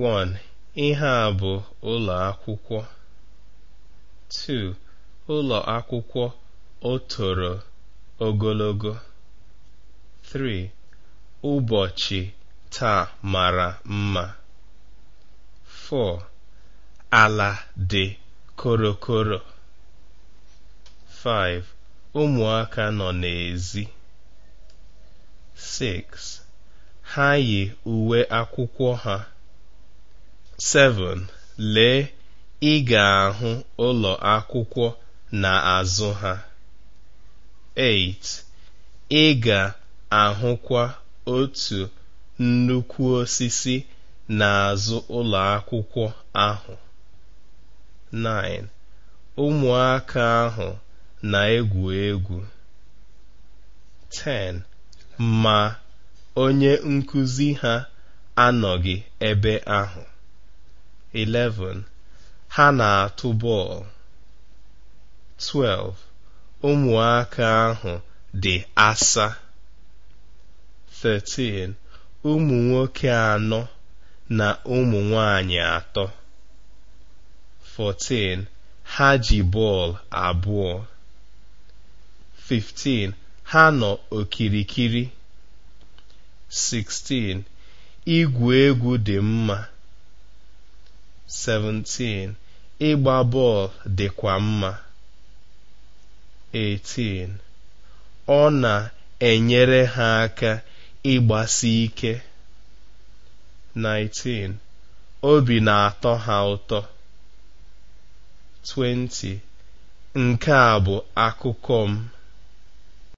1. Ihe a bụ ụlọ akwụkwọ. 2. Ụlọ akwụkwọ o toro ogologo. 3. Ụbọchị taa mara mma. 4. Ala dị korokoro. 5. Ụmụaka nọ n'èzí. 6. Ha yi uwe akwụkwọ ha. 7. Lee, ị ga-ahụ ụlọ akwụkwọ n'azụ ha. 8. Ị ga-ahụkwa otu nnukwu osisi n'azụ ụlọ akwụkwọ ahụ. 9. Ụmụaka ahụ na-egwu egwu. 10. Ma onye nkuzi ha anọghị ebe ahụ. 11 ha na-atụ bọọlụ 12 ụmụaka ahụ dị asa 13 ụmụ nwoke anọ na ụmụ nwanyị atọ 14 ha ji bọọlụ abụọ 15 ha nọ okirikiri 16 igwu egwu dị mma 17 ịgba bọọlụ dịkwa mma 18 ọ na-enyere ha aka ịgbasi ike 19 obi na-atọ ha ụtọ 20 nke a bụ akụkọ m